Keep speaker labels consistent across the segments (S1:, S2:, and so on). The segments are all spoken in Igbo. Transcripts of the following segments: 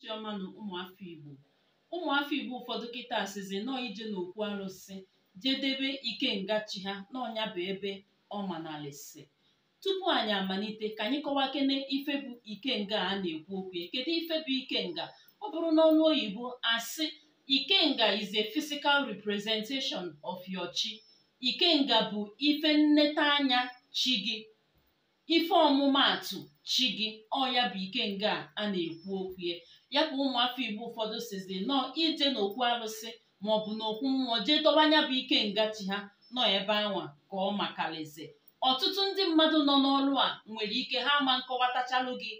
S1: Chiọma na ụmụafọ Igbo ụmụafọ Igbo ụfọdụ kịta sịzi nọọ ije n'okwu arụsị jedebe ikenga chi ha n'ọnya bụ ebe ọ manalịsị tupu anyị amalite ka anyị kọwaa kene ife bụ ikenga a na-ekwu okwu ya kedu ife bụ ikenga ọ bụrụ ọnụ oyibo asị ikenga is a physical representation of your chi ikenga bụ ife nneta anya chi gị ife ọmụmaatụ chi gị ọ ya bụ ikenga a na-ekwu okwu ya ya ka ụmụafọ igbo ụfọdụ sizi nọọ ije n'okwu arụsị maọbụ n'okwu mmụọ jee dọba bụ bụ nga chi ha nọ ebe anwa ka ọ makalize. ọtụtụ ndị mmadụ nọ n'ọrụ a nwere ike ha ma nkọwatachalụ gị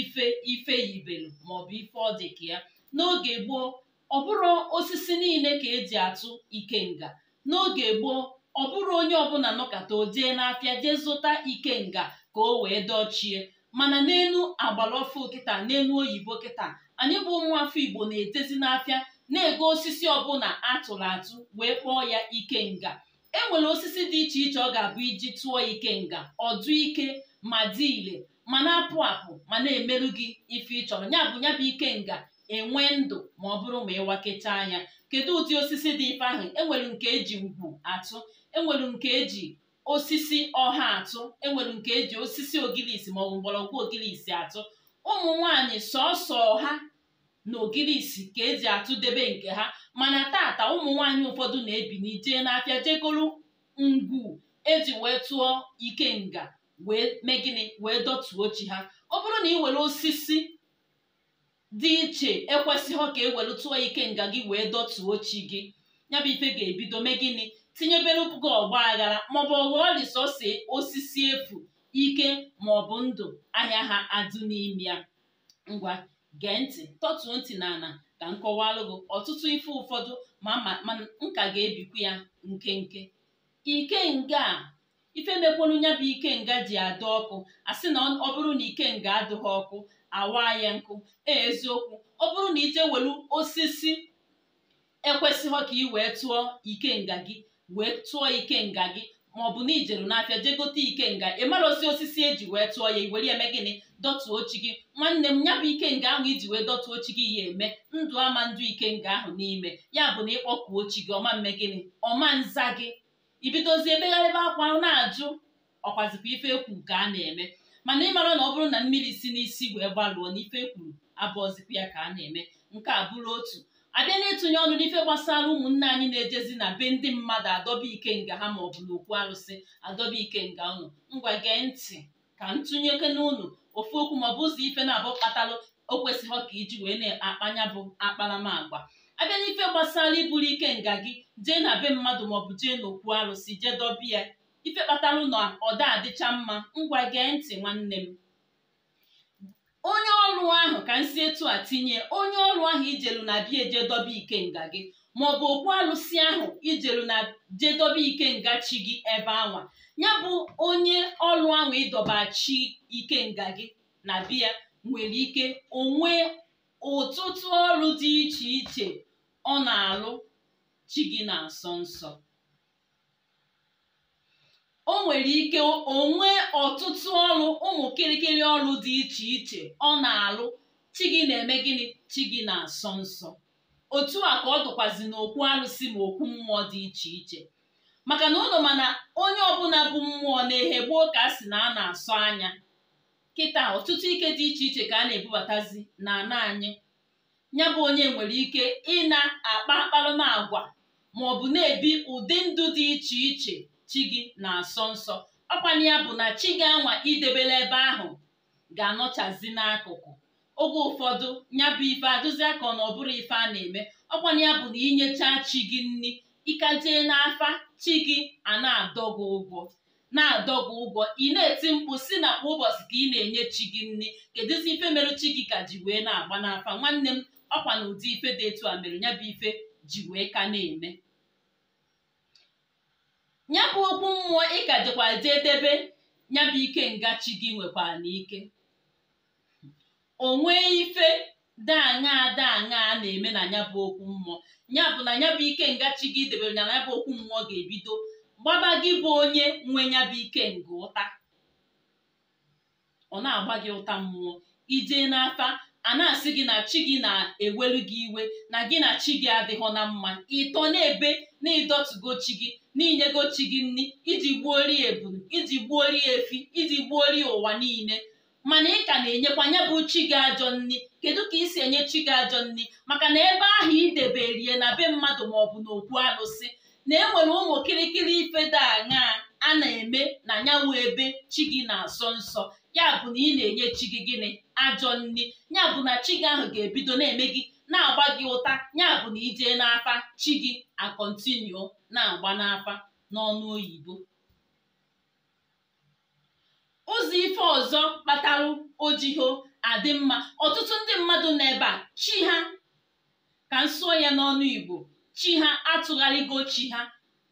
S1: ife ife yibelu maọbụ ife ọ dị ka ya n'oge gboo ọ bụrụ osisi niile ka eji atụ ike nga n'oge gboo ọ bụrụ onye ọbụla nọkata o jee n'afịa jee zụta ikenga ka o wee dochie mana n'elu agbara ọfụ kịta n'elu oyibo kịta anyị bụ ụmụafọ igbo na-etezi n'afịa na-ego osisi ọbụla atụrụ atụ wee kpọọ ya ike nga e nwere osisi dị iche iche ọ ga-abụ iji tụọ ike nga ọdụ ike ma dị ile ma na-apụ apụ ma na-emerụ gị ife ị chọrọ ya bụ ya bụ enwe ndụ ma ọ bụrụ ma ịwakechaa anya. kedu ụdị osisi dị ife ahụ enwere nke eji ugwu atụ enwere nke eji osisi ọha atụ enwere nke eji osisi ogilisi maọbụ mgbọrọgwụ ogilisi atụ ụmụ nwanyị sọọsọ ha na ogilisi ka eji atụ debe nke ha mana tata ụmụ nwanyị ụfọdụ na-ebini jee n'afịa jegoro ngwu eji wee tụọ ikenga wee mee gịnị wee dọtuo chi ha ọ bụrụ na ị were osisi dị iche ekwesịghị ka e ike nga gị wee dọtuo chi gị ya bụ ife ga-ebido mee gịnị tinyebere gị ọgba aghara maọbụ ghọọ risọsi osisi efu ike maọbụ ndụ ahịa ha adụ n'ime ya ngwa gee ntị tọtuo ntị na ana ka m gị ọtụtụ ife ụfọdụ ma mana nka ga-ebikwa ya nkenke ikenga a ife mekwuru ya bụ nga ji adị ọkụ a sị na ọ bụrụ na ikenga adịghị ọkụ awa ya nkụ e eziokwu ọ bụrụ na ije welu osisi ekwesịghị ka ị wee tụọ ikenga gị wee tụọ nga gị maọbụ na ijeru n'afịa jee gote ikenga osi osisi eji wee tụọ ya iwere eme gịnị dọtụọ chi gị nwanne m ya bụ ikenga ahụ iji wee dọtụọ chi gị ya eme ndụ ama ndụ ikenga ahụ n'ime ya bụ na ịkpọkuo chi gị ọma mme gịnị ọma nza gị ibidozie emegharịba akwa na-ajụ ọkwazikwa ife ekwu nke a na-eme mana mara na ọ bụrụ na mmiri si n'isi wee gbalụọ n'ife kwuru abụọzikwa ya ka a na-eme nke a bụrụ otu abịa na-etinye ọnụ n'ife gbasara ụmụnne anyị na-ejezi na be ndị mmadụ adọba ike nga ha maọbụ na okwu arụsị adọba ike nga ụnụ ngwa gee ntị ka ntụnyeke n'ụnụ ofu okwu ma ọ bụ ụzọ ife na-abụ kpatalụ o kwesịghị ka iji wee na-akpanya bụ akparamagwa abịa n'ife gbasara iburu ike nga gị jee na be mmadụ maọbụ jee n'okwu arụsị jee dọbịa ife kpatara na ọda adịcha mma ngwa gee ntị nwanne m onye ọrụ ahụ ka nsi etu a tinye onye ọrụ ahụ ijelu na bịa eje dobe ikenga gị maọbụ okwu alụsị ahụ ijelu na ike ikenga chi gị ebe anwa ya bụ onye ọrụ ahụ ịdọba chi nga gị na bịa nwere ike onwe ụtụtụ ọrụ dị iche iche ọ na-alụ chi gị na-asọ nsọ o nwere ike onwe ọtụtụ ọrụ ụmụ kịrịkịrị ọrụ dị iche iche ọ na-alụ chi gị na-eme gịnị chi gị na-asọ nsọ otu a ka ọ dụkwazi n'okwu arụsị ma okwu mmụọ dị iche iche maka na ụlọ mana onye ọbụla bụ mmụọ na-ehe gboo ka a sị na a na-asọ anya kịta ọtụtụ ike dị iche iche ka a na-ebubatazi na ana anyị ya bụ onye nwere ike ị na-akpa akparụma agwa ma ọ bụ na-ebi ụdị ndụ dị iche iche chi gị na-asọ nsọ ọkwanye ya bụ na chi gị anwa idebela ebe ahụ ga-anọchazi n'akụkụ oge ụfọdụ ya bụ ife adụzi aka na ọ bụrụ ife a na-eme ọkwanye ya bụ na inyechaa chi gị nri ịkajee n'afa chi gị a na gị ụgwọ na-adọgụ ụgwọ ị na-eti mkpu si na kwa ụbọchị ka ị na-enye chi gị nri kedụzi ife mere chi gị ka ji wee na-agba n'afa nwanne m ọkwa na ụdị ife dị etu a mere ya bụ ife ji wee ka na-eme ya bụ okwu mmụọ ị ka jekwazi edebe ya bụ ike ngachi gị nwekwara n'ike o nwee ife daanya a na-eme na ya okwu mmụọ ya bụ na ya bụ ike ngachi gị debere ya na ya bụ okwu mmụọ ga-ebido gbaba gị bụ onye nwe ya ike nga ụta ọ na-agba gị ụta mmụọ ijee n'afa a na-asị gị na chi gị na-ewelu gị iwe na gị na chi gị adịghọ na mma ịtọ na-ebe na ịdọtugo chi gị n'inyego chi gị nri iji gbuori ebulu iji gbuori efi iji gbuori ụwa niile mana ị ka na-enyekwa ya bụ chi gị ajọ nri kedu ka ị si enye chi gị ajọ nri maka na ebe ahụ ideberie na be mmadụ maọbụ okwu alụsị na enwere ụmụ kịrịkịrị ife dị aṅaa a na-eme na nyanwụ ebe chi gị na-asọ nsọ ya bụ na ị na-enye chi gị gịnị ajọ nri ya bụ na chi gị ahụ ga-ebido na-eme gị na-agba gị ụta ya bụ na ijee n'afa chi gị akọntinu na-agba n'afa n'ọnụ oyibo ụzọ ife ọzọ kpatara ojiho adị mma ọtụtụ ndị mmadụ nọ ebe a chi ha ka m ya n'ọnụ igbo chi ha atụgharịgo chi ha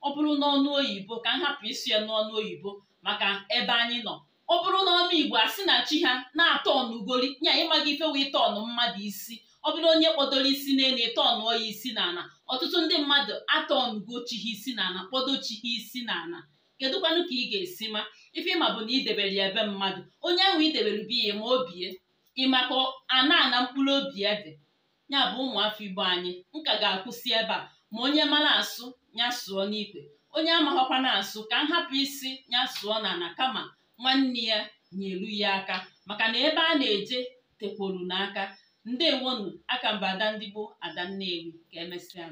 S1: ọ bụrụ n'ọnụ oyibo ka m hapụ isi ya n'ọnụ oyibo maka ebe anyị nọ ọ bụrụ na ọnụ igbo sị na chi ha na-atọnụ ugoli nya ịmaghị ife wee tọnụ mmadụ isi ọ bụrụ onye kpọdoro isi n'elu ịtọnụọ ya isi n'ala ọtụtụ ndị mmadụ atọnụgo chi ha isi n'ala kpọdo chi ha isi n'ala kedụkwanụ ka ị ga-esi ma ife ịma bụ na idebere ya ebe mmadụ onye ahụ idebere bi ya ma obie ịma ka ana ana mkpụrụ obi ya dị ya bụ ụmụafọ igbo anyị nka ga-akwụsị ebe a ma onye mara asụ ya sụọ n'ikwe onye amaghọkwa na asụ ka m hapụ isi ya sụọ n'ala kama nwanne ya nyelu ya aka maka na ebe a na-eje tekwolu n'aka ndewonu mba ada ndị gboo ada nnewi ka emesịa